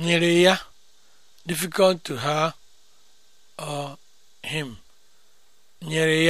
nyere ya difficult to her or him nyere